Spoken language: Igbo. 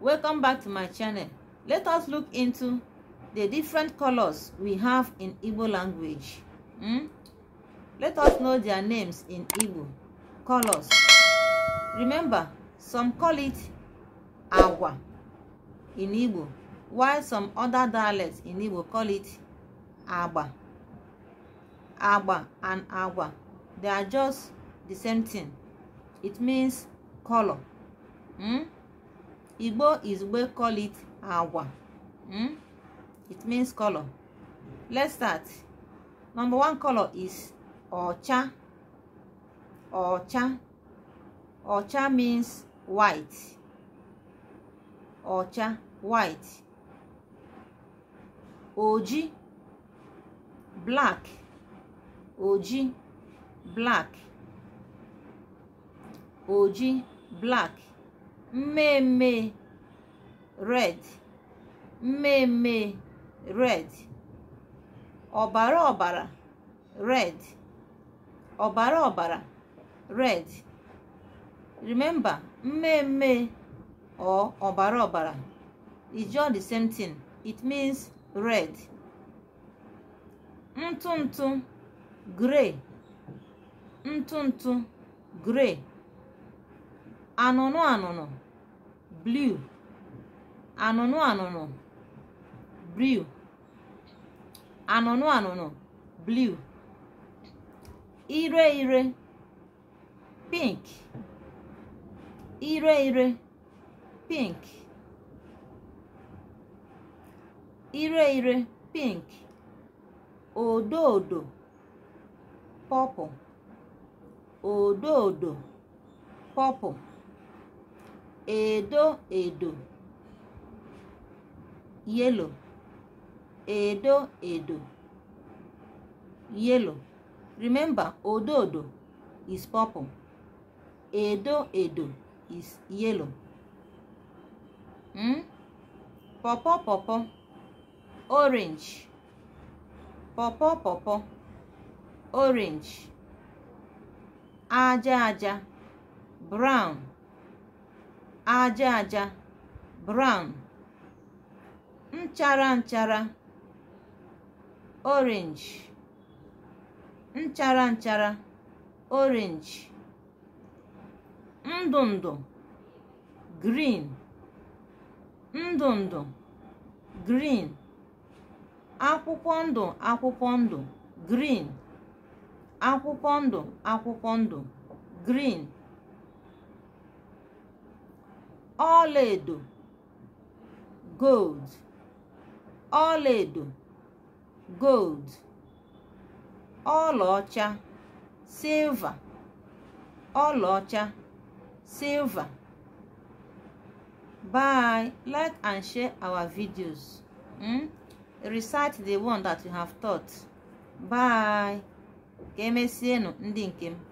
welcome back to my channel let us look into the different colors we have in Ibo language hmm? let us know their names in Ibo colors remember some call it agwa in Ibo, while some other dialects in Ibo call it agba agba and agwa they are just the same thing it means color hmm? Igbo is we call it awa. Hmm? It means color. Let's start. Number one color is ocha. Ocha. Ocha means white. Ocha, white. Oji, black. Oji, black. Oji, black mmemme red mmemme red ọbara ọbara red ọbara ọbara red remember mmemme or ọbara ọbara is just the same thing it means red ntụ ntụ grey ntụ ntụ grey anụnụ anụnụ blue anụnụ anụnụ blue anụnụ anụnụ blue ire ire pink ire ire pink ire ire pink odo odo purple odo odo purple edo edo yellow edo edo yellow remember odo odo is purple edo edo is yellow hmm? pawpaw pawpaw orange pawpaw pawpaw orange aja aja brown aja aja brown nchara nchara orange nchara nchara orange ndụ ndụ green ndụ ndụ green akwụkwọ ndụ akwụkwọ ndụ green akwụkwọ ndụ akwụkwọ ndụ green ọlaedo gold ọlaedo gold ọlaọcha silva ọlaọcha silva bye like and share our videos hmm? recite the one that you have taught bye ka emesienụ ndị nke m